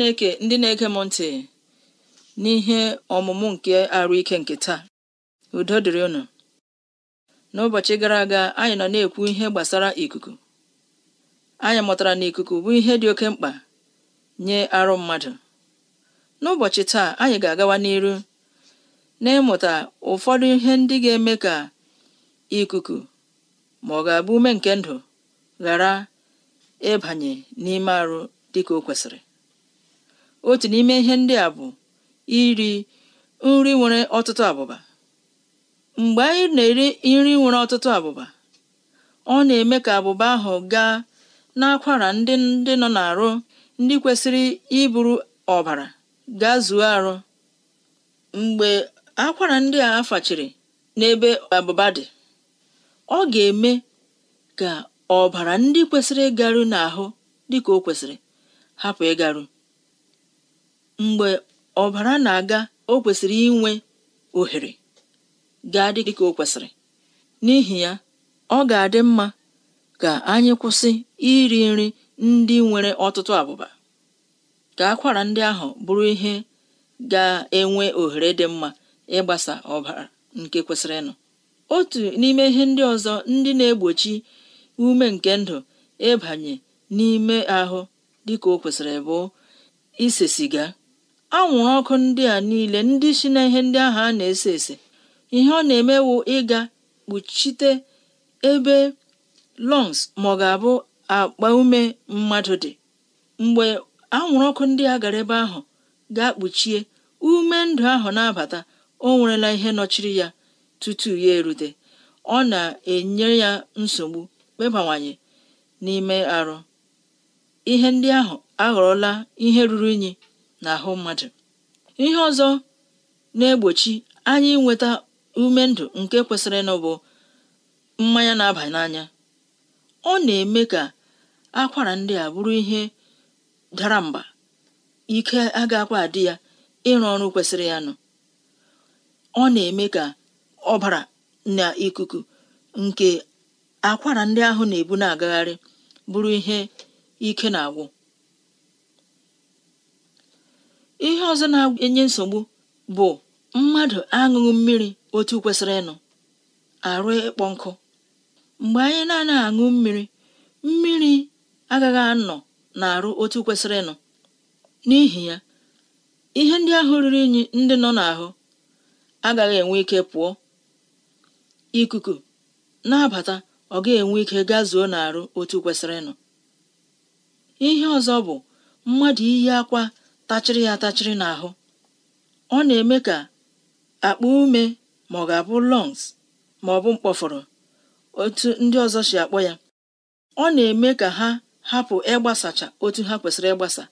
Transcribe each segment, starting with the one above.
chineke ndị na-ege m ntị n'ihe ọmụmụ nke arụ ike nke taa udo dịrị ụnụ n'ụbọchị gara aga anyị nọ na-ekwu ihe gbasara ikuku anyị mụtara na ikuku bụ ihe dị oke mkpa nye arụ mmadụ n'ụbọchị taa anyị ga-agawa n'iru n'ịmụta ụfọdụ ihe ndị ga-eme ka ikuku ma ọ ga-abụ ume nke ndụ ghara ịbanye n'ime arụ dịka o kwesịrị otu n'ime ihe ndị a bụ iri nri nwere ọtụtụ abụba mgbe anyị na-eri nri nwere ọtụtụ abụba ọ na-eme ka abụba ahụ gaa n'akwara ndị ndị nọ n'arụ ndị kwesịrị iburu ọbara gaa zuo arụ mgbe akwara ndị a afachiri n'ebe abụba dị ọ ga-eme ka ọbara ndị kwesịrị ịgaru n'ahụ dịka o kwesịrị hapụ ịgaru mgbe ọbara na-aga o kwesịrị inwe ohere ga-adị dịka o kwesịrị n'ihi ya ọ ga-adị mma ka anyị kwụsị iri nri ndị nwere ọtụtụ abụba ka akwara ndị ahụ bụrụ ihe ga-enwe ohere dị mma ịgbasa ọbara nke kwesịrịnụ otu n'ime ihe ndị ọzọ ndị na-egbochi ume nke ndụ ịbanye n'ime ahụ dịka o kwesịrị bụ ise siga anwụrụ ọkụ ndị a niile ndị si na ihe ndị ahụ a na-ese ese ihe ọ na-emewu ịga kpuchite ebe lungs ma ga-abụ akpa ume mmadụ dị mgbe anwụrụ ọkụ ndị a gara ebe ahụ ga-akpuchie ume ndụ ahụ na-abata o nwerela ihe nọchiri ya tutu ya erute ọ na-enye ya nsogbu kpebawanye n'ime arụ ihe ndị ahụ aghọrọla ihe ruru unyi n'ahụ mmadụ ihe ọzọ na-egbochi anyị inweta ume ndụ nke kwesịrị ịnụ bụ mmanya na-aba n'anya ọ na-eme ka akwara ndị a bụrụ ihe dara mba ike agakwa adị ya ịrụ ọrụ kwesịrị ya nọ ọ na-eme ka ọbara na ikuku nke akwara ndị ahụ na-ebu na-agagharị bụrụ ihe ike na-agwụ ihe ọzọ na-enye nsogbu bụ mmadụ aṅụghị mmiri otu kwesịrị ịnụ arụ ịkpọ nkụ mgbe anyị na-anaghị aṅụ mmiri mmiri agaghị anọ na-arụ otu kwesịrị ịnụ n'ihi ya ihe ndị ahụ riri unyi ndị nọ n'ahụ agaghị enwe ike pụọ ikuku na-abata ọ ga-enwe ike gazuo n'arụ otu kwesịrị ịnụ ihe ọzọ bụ mmadụ iyi akwa tachịrị ya atachịrị n'ahụ ọ na-eme ka akpụ ume ma ọ ga-abụ lungs ma ọ bụ mkpọfọrọ otu ndị ọzọ si akpọ ya ọ na-eme ka ha hapụ ịgbasacha otu ha kwesịrị ịgbasa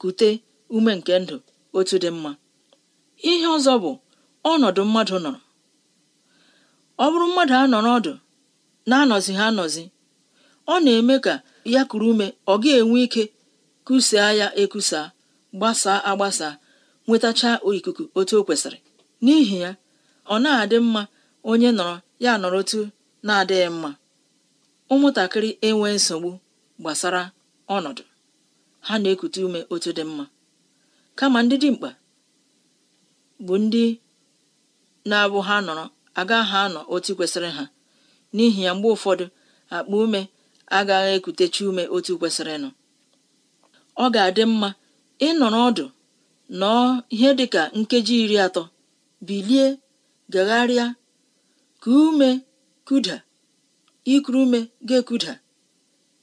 kute ume nke ndụ otu dị mma ihe ọzọ bụ ọnọdụ mmadụ nọrọ ọ bụrụ mmadụ anọrọ ọdụ na-anọzi ha anọzi ọ na-eme ka ya kuru ume ọ ga-enwe ike kusaa ya ekusaa gbasaa agbasa nwetacha ikuku otu o kwesịrị n'ihi ya ọ na-adị mma onye nọrọ ya nọrọ otu na-adịghị mma ụmụntakịrị enwe nsogbu gbasara ọnọdụ ha na-ekute ume otu dị mma kama ndị dimkpa bụ ndị na-abụ ha nọrọ agaghị anọ otu kwesịrị ha n'ihi ya mgbe ụfọdụ akpa ume agaghị ekutechi ume otu kwesịrị nọ ọ ga-adị mma ị nọrọ ọdụ nọọ ihe dị ka nkeji iri atọ bilie gagharịa ka ume kuda ikuru ume ga-ekuda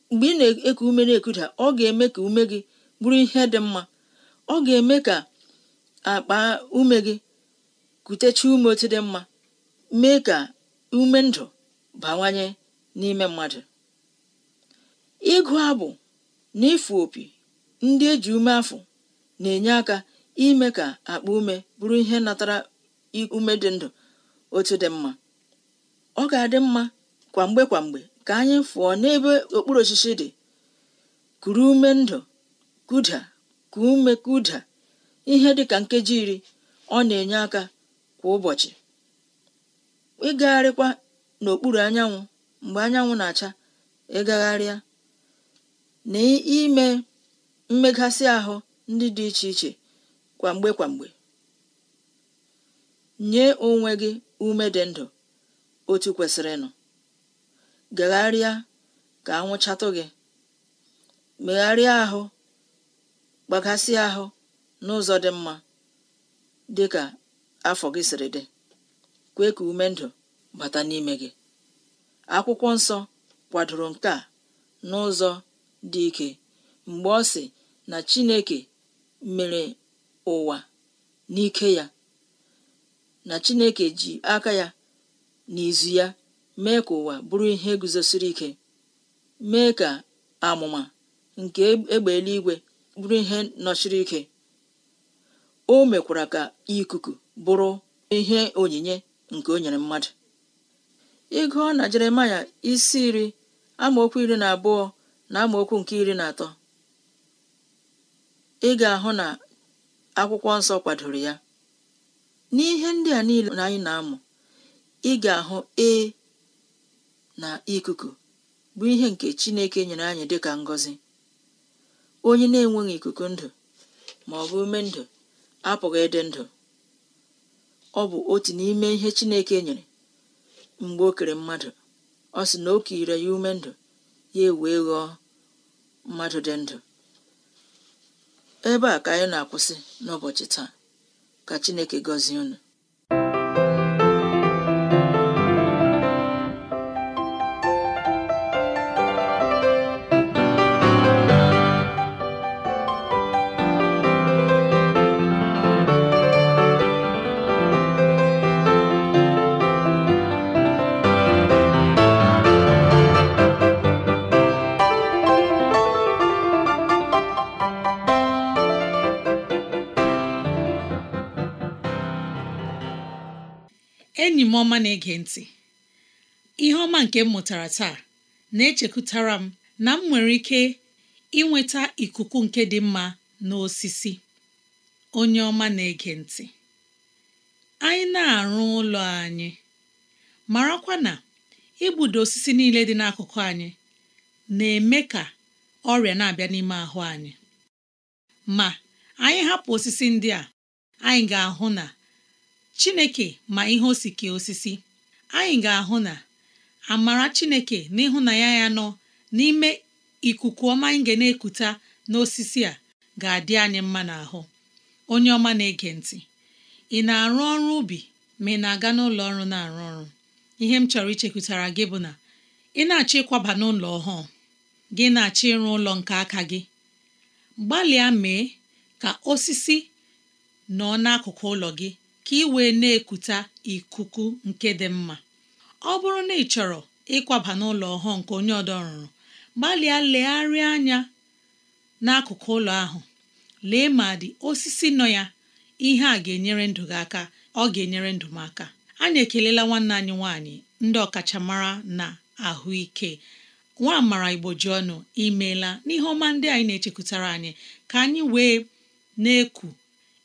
mgbe ị na-eku ume na-ekuda ọ ga-eme ka ume gị bụrụ ihe dị mma ọ ga-eme ka akpa ume gị kutecha ume otu dị mma mee ka ume ndụ bawanye n'ime mmadụ ịgụ abụ na ịfụ opi ndị eji ume afụ na-enye aka ime ka akpa ume bụrụ ihe natara ume dị ndụ otu dị mma ọ ga-adị mma kwa mgbe kwa mgbe ka anyị fụọ n'ebe okpuru osisi dị kuru ume ndụ kuda ka ume kuda ihe dị ka nkeji iri ọ na-enye aka kwa ụbọchị ịgagharịkwa n'okpuru anyanwụ mgbe anyanwụ na-acha ịgagharịa na ime mmeghasị ahụ ndị dị iche iche kwamgbe kwamgbe nye onwe gị ume dị ndụ otu kwesịrịnụ gagharịa ka anwụchatụ gị megharịa ahụ gbaghasị ahụ n'ụzọ dị mma dị ka afọ gị siri dị kwee ka ume ndụ bata n'ime gị akwụkwọ nsọ kwadoro nke a n'ụzọ dị ike mgbe ọ si. na Chineke mere ụwa n'ike ya, na Chineke ji aka ya n'izu ya mee ka ụwa bụrụ ihe guzosiri ike, mee ka amụma nke egbe eluigwe bụrụ ihe nọchiri ike. O mekwara ka ikuku bụrụ ihe onyinye nke o nyere mmadụ ị gụọ na Jeremaya isi iri amaokwu iri na abụọ na amaokwu nke iri na atọ ị ga-ahụ na akwụkwọ nsọ kwadoro ya n'ihe ndị a niile na anyị na-amụ ị ga-ahụ e na ikuku bụ ihe nke Chineke nyere anyị dị ka ngọzi onye na-enweghị ikuku ndụ ma ọ bụ ume ndụ apụghị ịdị ndụ ọ bụ otu n'ime ihe Chineke nyere mgbe o kere mmadụ ọ sị na o kire ya ume ndụ ya ewee ghọọ mmadụ dị ndụ ebe a ka anyị na-akwụsị n'ụbọchị taa ka Chineke gọzie unu enyi m ọma na-ege ntị ihe ọma nke m mụtara taa na-echekụtara m na m nwere ike inweta ikuku nke dị mma n'osisi onye ọma na-ege ntị anyị na-arụ ụlọ anyị marakwa na igbudo osisi niile dị n'akụkụ anyị na-eme ka ọrịa na-abịa n'ime ahụ anyị ma anyị hapụ osisi ndị a anyị ga-ahụ na chineke ma ihe osike osisi anyị ga-ahụ na amara chineke na ya nọ n'ime ikuku ọma anyị ga na-ekuta n'osisi a ga-adị anyị mma n'ahụ onye ọma na-ege ntị ị na-arụ ọrụ ubi ma ị na-aga n'ụlọ ọrụ na-arụ ọrụ ihe m chọrọ ichekwutara gị bụ na ị na-achọ ịkwaba n'ụlọ ọhụụ gị na-achọ ịrụ ụlọ nke aka gị gbalịa mee ka osisi nọ n'akụkụ ụlọ gị ka ị wee na ekute ikuku nke dị mma ọ bụrụ na ị chọrọ ịkwaba n'ụlọ ọhụụ nke onye ọdọrụrụ gbalịa legharịa anya n'akụkụ ụlọ ahụ lee ma dị osisi nọ ya ihe a ga-enyere ndụ gị aka ọ ga-enyere ndụ m aka anyị ekelela nwanne anyị nwaanyị ndị ọkachamara na ahụike nwa amara igbo ji ọnụ imeela n'ihe ọma ndị anyị na-echekwutara anyị ka anyị wee na-eku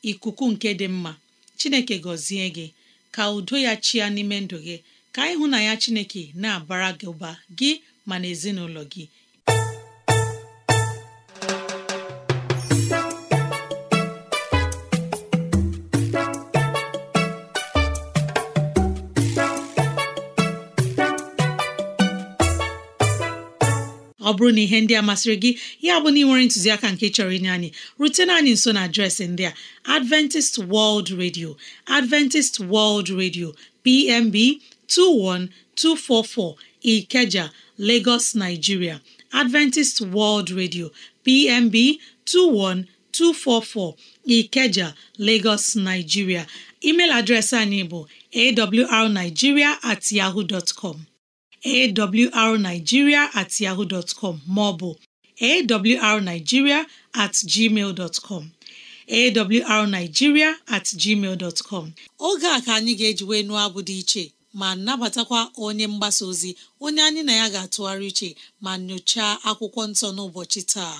ikuku nke dị mma chineke gọzie gị ka udo ya chịa n'ime ndụ gị ka ịhụ na ya chineke na-abara gị ụba gị ma na ezinụlọ gị bụrụ na ihe ndị a masịrị gị ya bụ na ị nwere ntụziaka nke chọrọ inye anyị rutena anyị nso na adreesị ndị a Adventist World Radio Adventist World Radio PMB 21244 Ikeja Lagos Nigeria Adventist World Radio PMB 21244 Ikeja Lagos Nigeria email adreesị anyị bụ awrnigeria at yahoo dot com awrnigeria at ọ bụ maọbụ at gmail com oge a ka anyị ga-eji wee nụọ abụ dị iche ma nabatakwa onye mgbasa ozi onye anyị na ya ga-atụgharị iche ma nyochaa akwụkwọ nsọ n'ụbọchị taa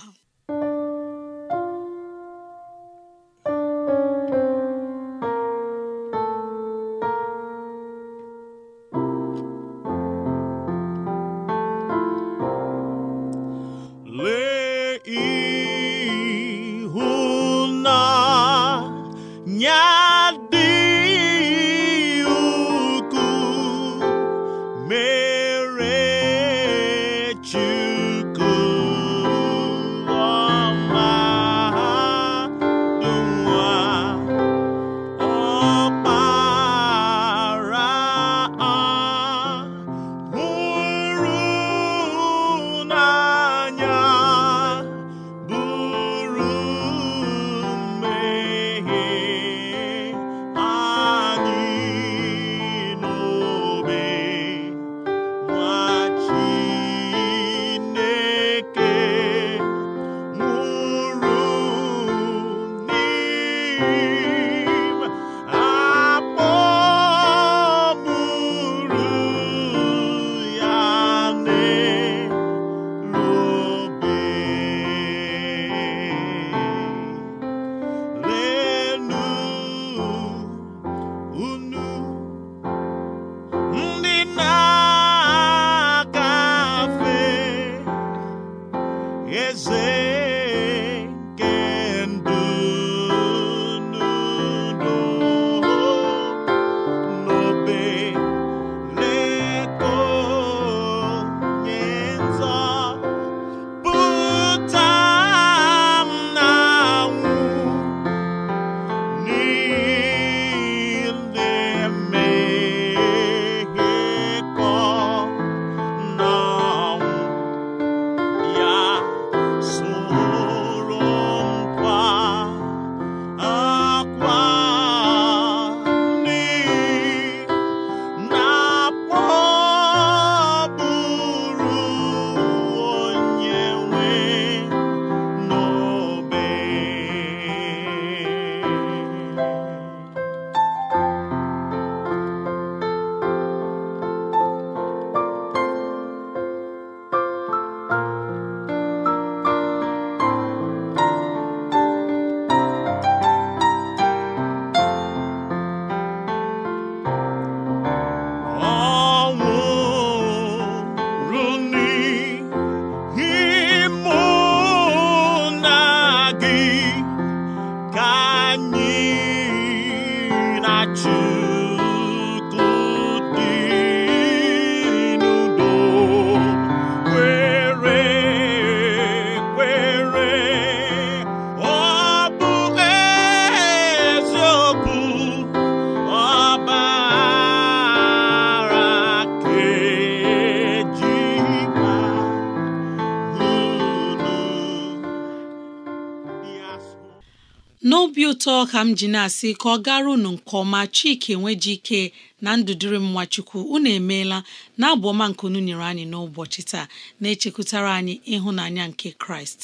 ọzọ ka m ji na-asị ka ọ gara unu nke ọma Chike ike na ndụdịrị m nwachukwu unu emeela na abụ ọma nke unu nyere anyị n'ụbọchị taa na-echekwutara anyị ịhụnanya nke Kraịst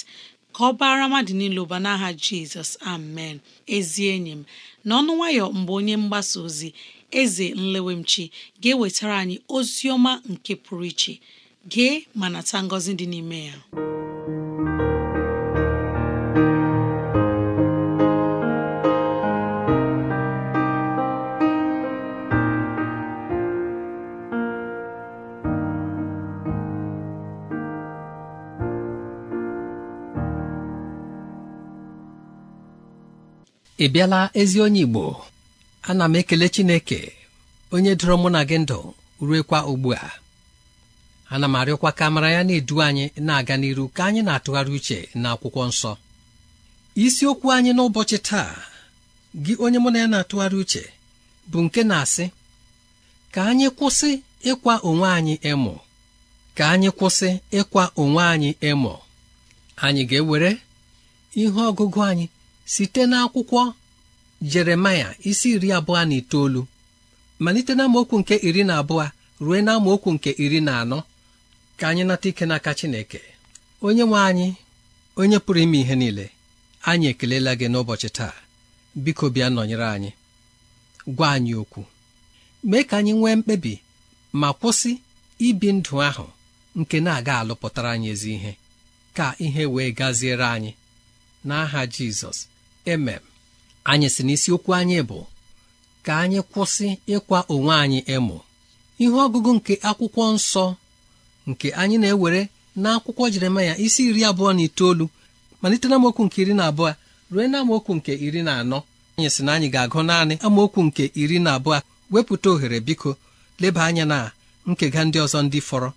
ka ọ baara mmadụ niile ụba n'aha Jizọs amen ezi enyi m na ọnụ nwayọ mgbe onye mgbasa ozi eze nlewemchi ga-ewetara anyị ozi ọma nke pụrụ iche gee ma nata ngọzi dị n'ime ya ị bịala ezi onye Igbo ana m ekele Chineke onye doro mụ na gị ndụ ruekwa ugbu a ana m arịọkwa ka mara ya na-edu anyị na-aga n'iru ka anyị na-atụgharị uche na akwụkwọ nsọ isiokwu anyị n'ụbọchị taa gị onye mụ na ya na-atụgharị uche bụ nke na-asị ka anyị kwụsị ịkwa onwe anyị ịmụ ka anyị kwụsị ịkwa onwe anyị ịmụ anyị ga-ewere ihe ọgụgụ anyị site n'akwụkwọ jeremaya isi iri abụọ na itoolu malite na amaokwu nke iri na abụọ ruo na amaokwu nke iri na anọ ka anyị nata ike n'aka Chineke onye nwe anyị onye pụrụ ime ihe niile anyị ekelela gị n'ụbọchị taa biko bịa nọnyere anyị gwa anyị okwu mee ka anyị nwee mkpebi ma kwụsị ibi ndụ ahụ nke na-aga alụpụtara anyị ezi ihe ka ihe wee gaziere anyị n'aha Jizọs eme anyị si n'isiokwu anyị bụ ka anyị kwụsị ịkwa onwe anyị ịmụ ihe ọgụgụ nke akwụkwọ nsọ nke anyị na-ewere n'akwụkwọ Jeremaya isi iri abụọ na itoolu malite na nke iri na abụọ rue na amaokwu nke iri na anọ anyị sị na anyị ga-agụ naanị amaokwu nke iri na abụọ wepụta ohere biko leba anya na nkega ndị ọzọ ndị fọrọ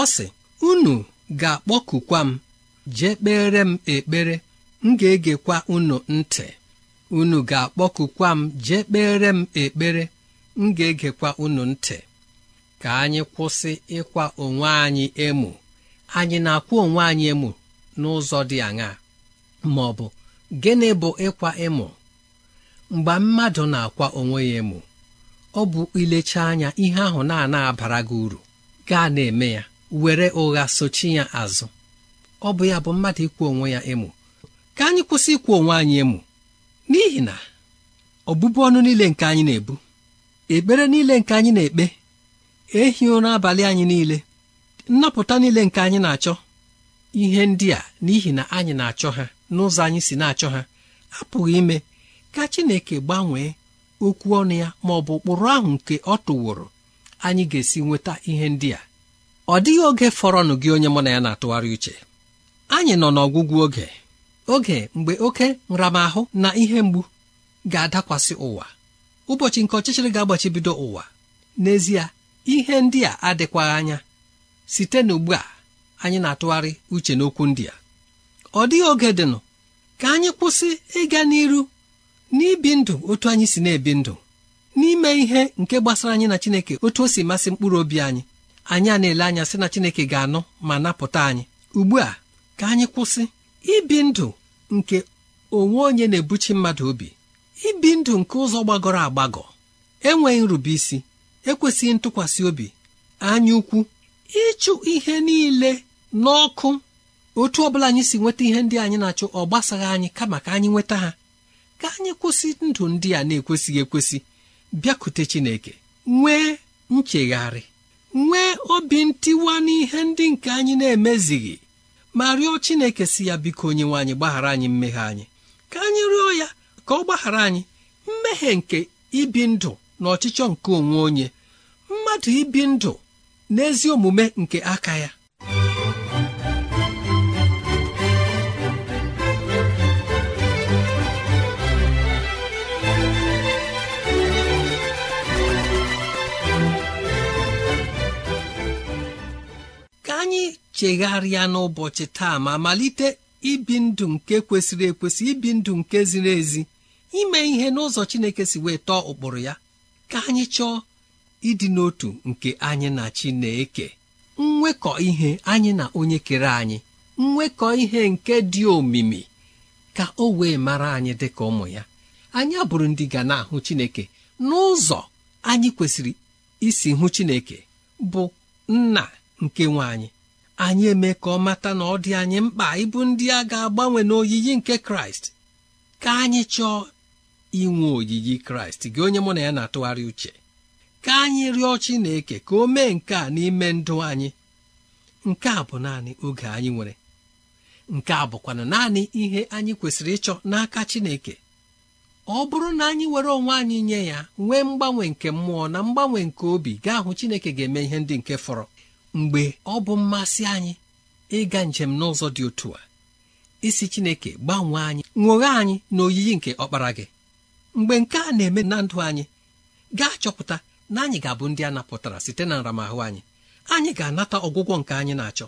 ọ sị unu ga-akpọkukwa m jee kpere m ekpere m ga-egekwa unu ntị unu ga-akpọkukwa m jee kpere m ekpere m ga-egekwa unu ntị ka anyị kwụsị ịkwa onwe anyị emu anyị na-akwụ onwe anyị emu n'ụzọ dị aṅaa ma ọ bụ gịnị bụ ịkwa emu mgbe mmadụ na-akwa onwe ya emu ọ bụ ilecha anya ihe ahụ na abara gị uru gaa na-eme ya were ụgha sochi ya azụ ọ bụ ya bụ mmadụ ịkwụ onwe ya emu ka anyị kwụsị ikwu onwe anyị emu n'ihi na ọbụbụ ọnụ niile nke anyị na-ebu ekpere niile nke anyị na-ekpe ehi ụra abalị anyị niile nnapụta niile nke anyị na-achọ ihe ndị a n'ihi na anyị na-achọ ha n'ụzọ anyị si na-achọ ha apụghị ime ka Chineke gbanwee okwu ọnụ ya ma ọ bụ ụkpụrụ ahụ nke ọ tụworo anyị ga-esi nweta ihe ndị a ọ dịghị oge fọrọnụ gị onye mụ na ya na-atụgharị uche anyị nọ n'ọgwụgwụ oge oge mgbe oke nramahụ na ihe mgbu ga-adakwasị ụwa ụbọchị nke ọchịchịrị ga-agbachibido ụwa n'ezie ihe ndị a adịkwaghị anya site n'ugbu a anyị na-atụgharị uche n'okwu ndị a ọ dịghị oge dịnụ ka anyị kwụsị ịga n'iru n'ibi ndụ otu anyị si na-ebi ndụ n'ime ihe nke gbasara anyị na Chineke otu o si masị mkpụrụ obi anyị anyị a na-ele anya sị na Chineke ga-anụ ma napụta anyị ugbu a ka anyị kwụsị ibi ndụ nke onwe onye na-ebuchi mmadụ obi ibi ndụ nke ụzọ gbagọrọ agbagọ enweghị isi ekwesịghị ntụkwasị obi anya ukwu ịchụ ihe niile n'ọkụ otu ọbụla anyị si nweta ihe ndị anyị na-achụ ọ gbasaghị anyị kama ka anyị nweta ha ka anyị kwụsị ndụ ndị a na-ekwesịghị ekwesị bịakute Chineke nwee nchegharị nwee obi ntiwa n'ihe ndị nke anyị na-emezighị ma rịọ Chineke si ya biko onyenwe anyị gbaghara anyị mmehie anyị ka anyị rịọ ya ka ọ gbaghara anyị mmehie nke ibi ndụ na ọchịchọ nke onwe onye mmadụ ibi ndụ n'ezi omume nke aka ya ka anyị chegharịa n'ụbọchị taa ma malite ibi ndụ nke kwesịrị ekwesị ibi ndụ nke ziri ezi ime ihe n'ụzọ Chineke si wee tọọ ụkpụrụ ya ka anyị chọọ ịdị n'otu nke anyị na Chineke nwekọ ihe anyị na onye kere anyị nwekọ ihe nke dị omimi ka o wee mara anyị dị ka ụmụ ya anyị abụrụ ndị ga na-ahụ Chineke n'ụzọ anyị kwesịrị isi hụ Chineke bụ nna nke nwaanyị. anyị eme ka ọ mata na ọ dị anyị mkpa ịbụ ndị a ga-agbanwe n'oyiyi nke kraịst ka anyị chọọ inwe oyiyi kraịst gị onye mụ na ya na-atụgharị uche ka anyị rịọ chineke ka o mee nke a n'ime ndụ anyị nke a bụ naanị oge anyị nwere nke a bụkwana naanị ihe anyị kwesịrị ịchọ n'aka chineke ọ bụrụ na anyị were onwe anyị nye ya nwee mgbanwe nke mmụọ na mgbanwe nke obi gaa hụ chineke ga-eme ihe ndị nke fọrọ mgbe ọ bụ mmasị anyị ịga njem n'ụzọ dị otu a isi Chineke gbanwee anyị ṅụghe anyị na oyiyi nke ọkpara gị mgbe nke a na-eme na ndụ anyị gaa chọpụta na anyị ga-abụ ndị a napụtara site na nramahụ anyị anyị ga-anata ọgwụgwọ nke anyị na-achọ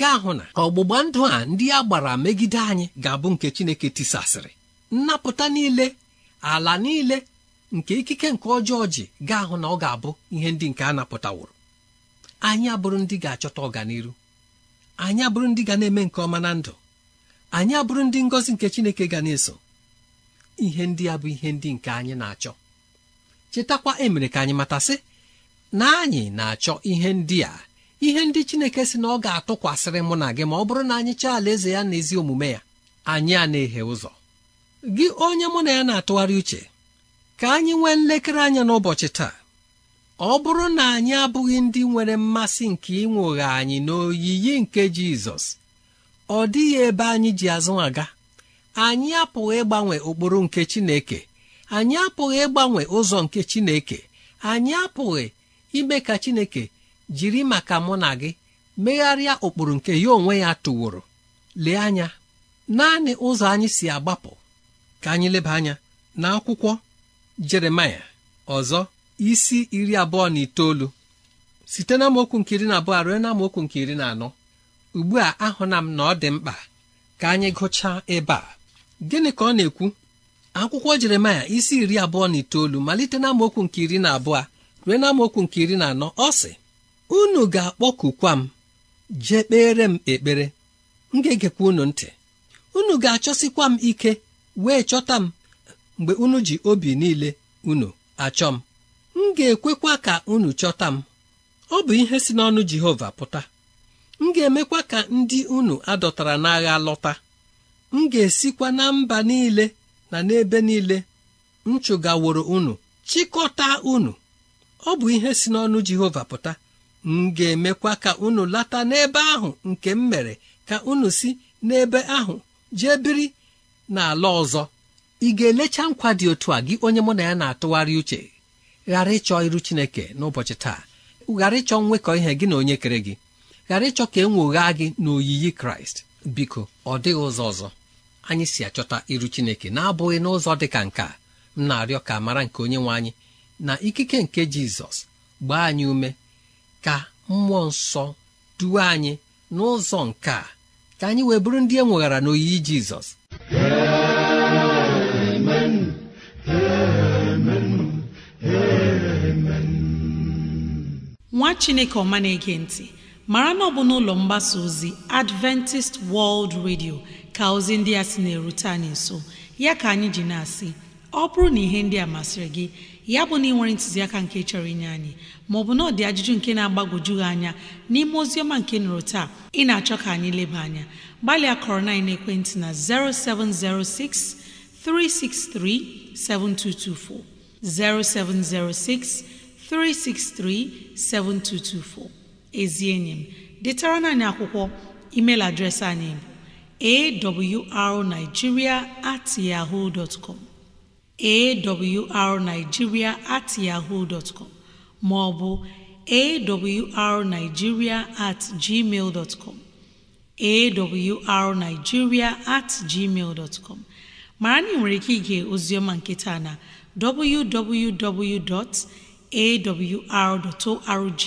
gaa hụ na ọgbụgba ndụ a ndị a gbara megide anyị ga-abụ nke Chineke tisasịrị nnapụta niile ala niile nke ikike nke ọjọọ ji gaa hụ na ọ ga-abụ ihe ndị nke a napụtawụrụ anyị abụrụ ndị ga-achọta ọganiru anyị abụrụ ndị ga na-eme nke ọma na ndụ anyị abụrụ ndị ngọzi nke Chineke ga na-eso ihe ndị a bụ ihe ndị nke anyị na-achọ chetakwa emere ka anyị matasị na anyị na-achọ ihe ndị a ihe ndị Chineke sị na ọ ga-atụkwasịrị mụ na gị ma ọ bụrụ na anyị chọọ alaeze ya na ezi omume ya anyị a na eghe ụzọ gị onye mụ na ya na-atụgharị uche ka anyị nwee nlekere anya n'ụbọchị taa ọ bụrụ na anyị abụghị ndị nwere mmasị nke ịnwụghe anyị n'oyiyi nke jizọs ọ dịghị ebe anyị ji azụ aga anyị apụghị ịgbanwe ụkpụrụ nke chineke anyị apụghị ịgbanwe ụzọ nke chineke anyị apụghị ime ka chineke jiri maka mụ na gị megharịa ụkpụrụ nke ya onwe ya tụworo lee anya naanị ụzọ anyị si agbapụ ka anyị leba anya n'akwụkwọ Jeremaya ọzọ isi iri abụọ na itoolu site na amaokwu nke iri na abụọ ruo na nke iri na anọ ugbu a ahụna m na ọ dị mkpa ka anyị gụchaa ebe a gịnị ka ọ na-ekwu akwụkwọ jeremaya isi iri abụọ na itoolu malite na amaokwu nke iri na abụọ ruo na mokwu nke iri na anọ ọ sị unu ga-akpọkukwa m jee kpere m ekpere m ga-egekwa unu ntị unu ga-achọsikwa m ike wee chọta m mgbe unu ji obi niile unu achọ m ga-ekwekwa ka unu chọta m ọ bụ ihe si n'ọnụ Jehova pụta m ga-emekwa ka ndị unu adọtara n'agha lọta m ga-esikwa na mba niile na n'ebe niile m chụgaworo unu chịkọta unu ọ bụ ihe si n'ọnụ Jehova pụta m ga-emekwa ka unu lata n'ebe ahụ nke m mere ka unu si n'ebe ahụ jee biri n'ala ọzọ ị ga-elecha nkwa dị otu a gị onye mụ na ya na-atụgharị uche ghara ịchọ iru chineke n'ụbọchị taa ghara ịchọ nwekọ ihe gị na onye kere gị ghara ịchọ ka e nwoghaa gị n'oyiyi kraịst biko ọ dịghị ụzọ ọzọ anyị si achọta iru chineke na-abụghị n'ụzọ dị ka nke m na-arịọ ka mara nke onye nwe anyị na ikike nke jizọs gbaa anyị ume ka mmụọ nsọ duwe anyị n'ụzọ nke ka anyị wee bụrụ ndị e nweghara n'oyiyi jizọs chineke ọma na-ege ntị mara na ọ bụ n'ụlọ mgbasa ozi adventist world radio ka ozi ndị a sị na-erute anyị nso ya ka anyị ji na-asị ọ bụrụ na ihe ndị a masịrị gị ya bụ na ị nwere ntụziaka nke chọrọ inye anyị maọbụ na ọdị ajụjụ nke na-agbagwoju anya n'ime ozi ọma nke nụrụ taa ị na-achọ ka anyị leba anya gbalịa kọrọ na ekwentị na 0706 363 7224 0706 363-7224 ezi enyi m detara anyị akwụkwọ email adreesị anyị bụ awrnigeria at yahoo dot com awrnigeria at yahoo dot com ma ọ at gmail dot com awrnigeria at gmail dot com mara na ị nwere ike ige ozioma nke taa na www. awr.org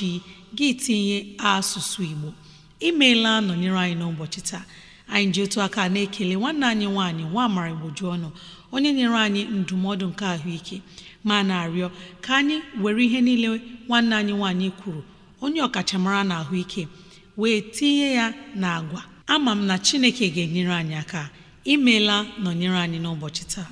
gị tinye asụsụ Igbo imeela nọnyere anyị n'ụbọchị taa anyị ji otu aka na-ekele nwanne anyị nwanyị nwa amara igboju ọnụ onye nyere anyị ndụmọdụ nke ahụike ma na-arịọ ka anyị were ihe niile nwanne anyị nwanyị kwuru onye ọkachamara na ahụike wee tinye ya na agwa ama m na Chineke ga-enyere anyị aka imeela nọnyere anyị n'ụbọchị taa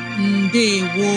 ndewo